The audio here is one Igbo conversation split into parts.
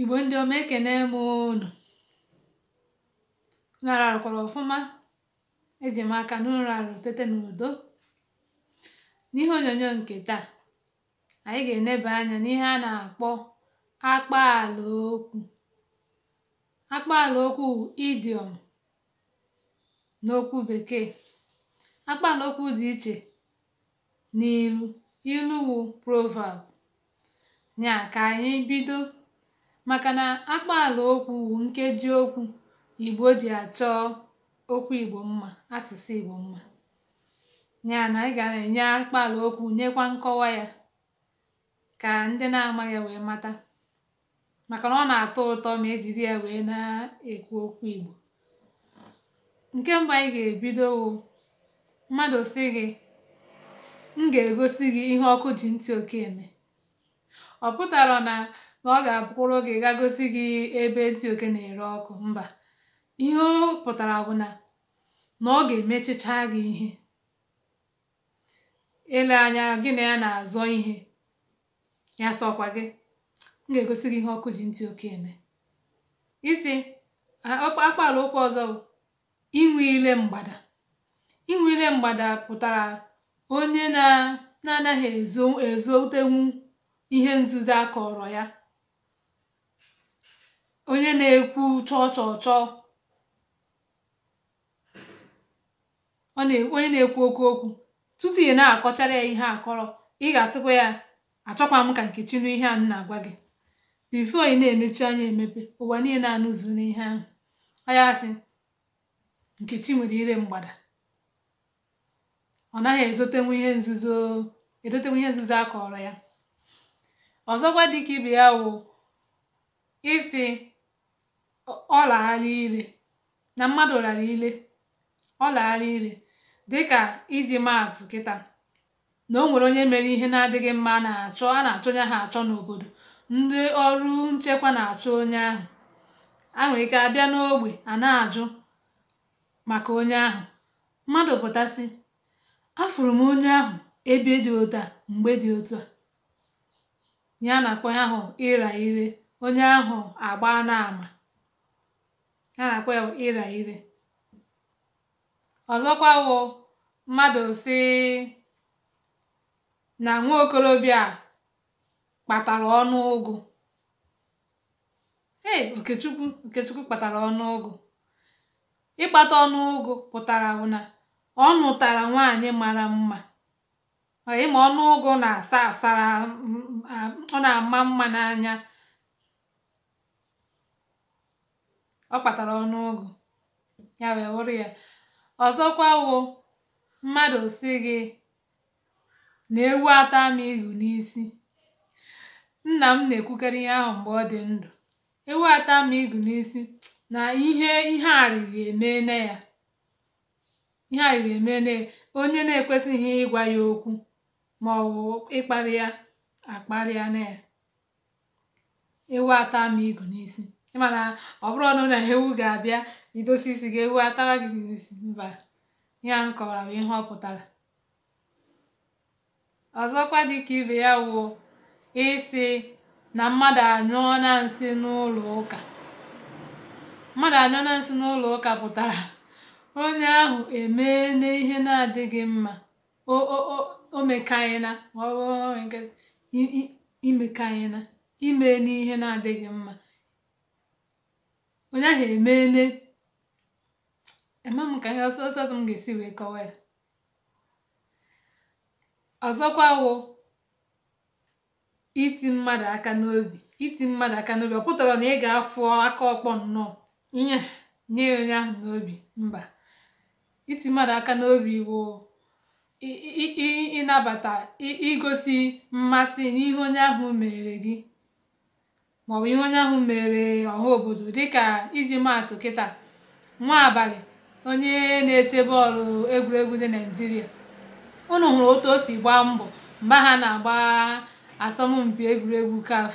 igbo ndị ọma ekene m unu nara ọfụma eji m aka n'ụlọ arụ tete n'udo n'ihe onyonyo nke taa anyị ga-eneba anya n'ihe a na-akpọ akpaalaokwu okwu okwu idiom n'okwu bekee akpaalaokwu okwu dị iche n'ilu ilu wụ proverb nya ka anyị bido maka na akpaala okwu nkeji okwu Igbo ji achọ okwu Igbo mma asụsụ Igbo mma ya na ị ga enye akpaala okwu nyekwa nkọwa ya ka ndị na ama ya wee mata maka na ọ na-atọ ụtọ ma ejiri ya wee na-ekwu okwu Igbo nke mbụ anyị ga-ebido mmadụ si gị m ga-egosi gị ihe ọkụ ji ntị oke eme ọ pụtara na na ọ ga-abụkwụrụ gị ga gosi gị ebe ndị oke na-ere ọkụ mba ihe ọ pụtara bụ na ọ ga-emechicha gị ihe ele anya gị na ya na-azọ ihe ya sọkwa gị m ga-egosi gị ihe ọkụ ji ntị oke eme isi akpala okwu ọzọ bụ inwe ile mgbada inwe ile mgbada pụtara onye na-anaghị ezotenwu ihe nzuzo a kọrọ ya onye na-ekwu chọọ chọọ chọọ onye na-ekwu oke okwu tutu ị na-akọchara ya ihe akọrọ ị ga-asịkwa ya achọkwa m ka nkechi nụ ihe a na-agwa gị bifo ị na-emechi anya emepe ụwa niile anụzụ n'ihe ahụ ọ ya sị nkechi nwere ire mgbada ọ naghị ezotenwu ihe nzuzo edotenwu ihe nzuzo a kọrọ ya ọzọkwa dịka ibe ya wụ isi ọ ire na mmadụ lara ire ọ ire dịka iji maatụ kịta na o nwere onye mere ihe na-adịghị mma na-achọ a na achọ onye ha achọ n'obodo ndị ọrụ nchekwa na-achọ onye ahụ a nwere ike abịa n'ogbe a na-ajụ maka onye ahụ mmadụ pụtasị afụrụ m onye ahụ ebe dị ụta mgbe dị otu a ya na-akpọ ahụ ịra ire onye ahụ agba na ya na-akpọ ya ịra ire ọzọkwa wụ mmadụ si na nwa okorobịa kpatara ọnụ ụgụ ee okechukwu okechukwu kpatara ọnụ ụgụ ịkpata ọnụ ụgụ pụtara ụna na ọ nụtara nwaanyị mara mma ịma ọnụ ụgụ na-asa asara ọ na-ama mma n'anya ọ kpatara ọnụọgụ ya wee wụrụ ya ọzọkwa wụ mmadụ si gị na ewu ata m ihu n'isi nna m na-ekwukarị ihe ahụ mgbe ọ dị ndụ ewu ata m ihu n'isi na ihe ihe arịrị eme na ya ihe arịrị onye na-ekwesịghị ịgwa ya okwu ma ọ bụ ịkparị ya akparịa na ya ewu ata m ihu n'isi ịmana ọ bụrụ na na ewu ga-abịa idosi isi gị ewu atara gị n'isi mba ya a ihe ọ pụtara ọzọkwa dịka ibe ya wụ isi na mmadụ anyụọ na nsị n'ụlọ ụka mmadụ anyụọ na nsị n'ụlọ ụka pụtara onye ahụ emee n'ihe na-adịghị mma o mekanyena ọ bụrụ ime n'ihe na-adịghị mma onye ahụ emeele ema m ka anya ọsọ ọsọ m ga-esi wee kọwa ya ọzọkwa wụ iti mmadụ aka n'obi iti mmadụ aka n'obi ọ pụtara na ị ga-afụ aka ọkpọ nnọọ nye nye onye ahụ n'obi mba iti mmadụ aka n'obi wụ ịnabata igosi mmasị n'ihe onye ahụ mere gị maọbụ ihe onye ahụ mere ọha obodo dịka iji maatụ kịta nwa abalị onye na-eche bọọlụ egwuregwu dị naijiria ụnụ hụrụ otu o si gbaa mbọ mgbe ha na-agba asọmpi egwuregwu CAF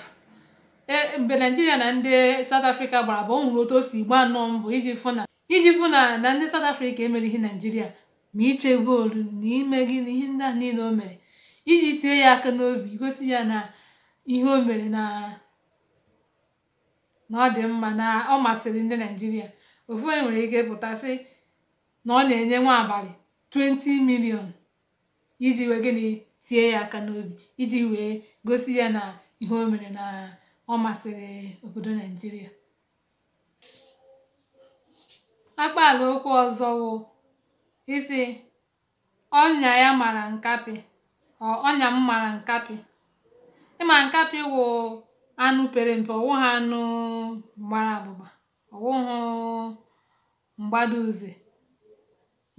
e, mgbe naijiria na ndị South afrịka gbara bụ o otu o si gbaa nnọọ mbọ iji fụ na na ndị South afrịka emerighị naijiria ma iche bọọlụ na ime gịnị ihe ndị ahụ niile o mere iji tinye ya aka n'obi gosi ya na ihe o mere na na ọ dị mma na ọ masịrị ndị Naijiria ofu onye nwere ike pụta pụtasị na ọ na-enye nwa abalị 20 million iji wee gịnị tie ya aka n'obi iji wee gosi ya na ihe o mere na ọ masịrị obodo Naijiria akpaala okwu ọzọ wụ isi ọnya ya mara nkapị ọ ọnya m mara nkapị ịma nkapị wụ anụ pere mpe ọ̀wụghị anụ gbara abụba ọwụhụ m̀gbada uze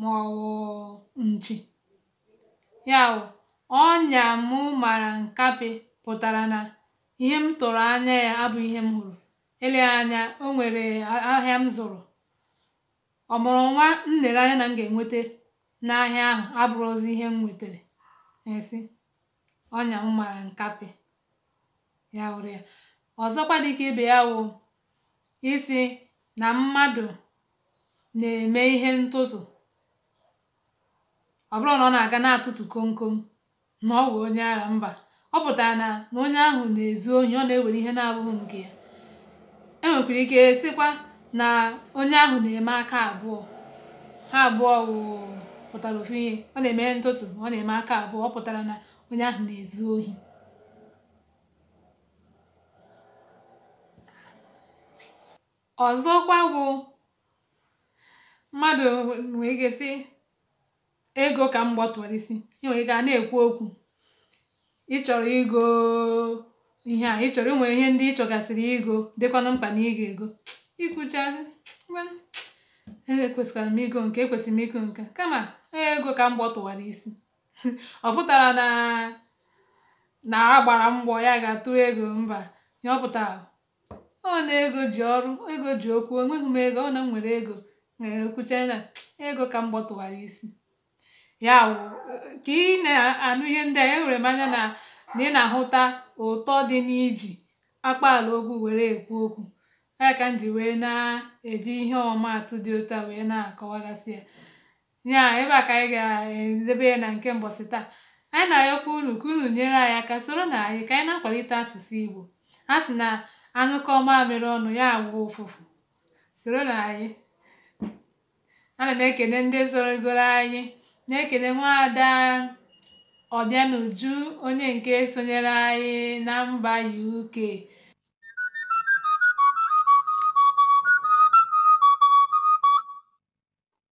màọ̀wụ̀ nchi ya ọnya mụ mara nkapị pụtara na ihe m tụrụ anya ya abụghị ihe m hụrụ eleghị anya o nwere ahịa m zụrụ ọ̀mụ̀rụ̀ nwa m nere anya na m ga enweta n'ahịa ahụ abụrụ abụrọzi ihe m nwetara esi ọnya m mara nkapị ya wụrụ ya ọzọkwa dịka ibe ya wụ isi na mmadụ na-eme ihe ntụtụ ọ bụrụ na ọ na-aga na-atụtụ komkom na ọ wụ onye ara mba ọ pụtara na na onye ahụ na-ezu ohi ọ na-ewere ihe na-abụghị nke ya e nwekwara ike sịkwa na onye ahụ na-eme aka abụọ ha abụọ pụtara ofu ihe ọ na-eme ntụtụ ọ na-eme aka abụọ ọ pụtara na onye ahụ na-ezu ohi ọzọkwa bụ mmadụ nwee ike sị ego ka m gbọtọrọ isi ị nwere ike a na-ekwu okwu ị chọrọ igo ihe a ị chọrọ inwe ihe ndị ị chọgasịrị igo dịkwanụ mkpa na ị ego ikwuchazị ekwesịkwara e m igo nke ekwesịrị m igo nke kama ego ka m gbọtụwara isi ọ pụtara na na agbara mgbọ ya ga-atụ ego mba ya ọ pụtara ọ na ego ji ọrụ ego ji okwu enweghị m ego ọ na m nwere ego ekwuchanye na ego ka m gbọtụwara isi ya wụ ka ị na-anụ ihe ndị a enwere m anya na ị na-ahụta ụtọ dị n'iji akpaala okwu were ekwu okwu ya ka m ji wee na-eji ihe ọmaatụ dị otu a wee na-akọwagasị ya ya ebe a ka anyị ga-edebe ya na nke mbọsị taa anyị na-ayọkwa unu ka unu nyere anyị aka soro na anyị ka anyị na-akwalite asụsụ Igbo a sị na anụ kọọ mamịrị ọnụ ya agwụ ụfụfụ. Soro na anyị! Ana m ekene ndị sorogoro anyị, na-ekene nwaada Obianuju onye nke sonyere anyị na mba UK.